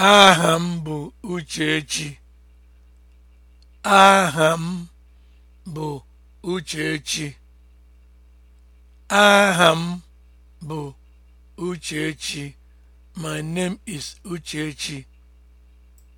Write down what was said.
Aha m bụ Uchechi. Aha bụ Uchechi. My name is Uchechi.